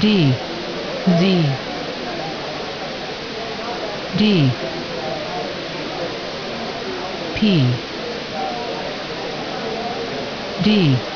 D Z D P D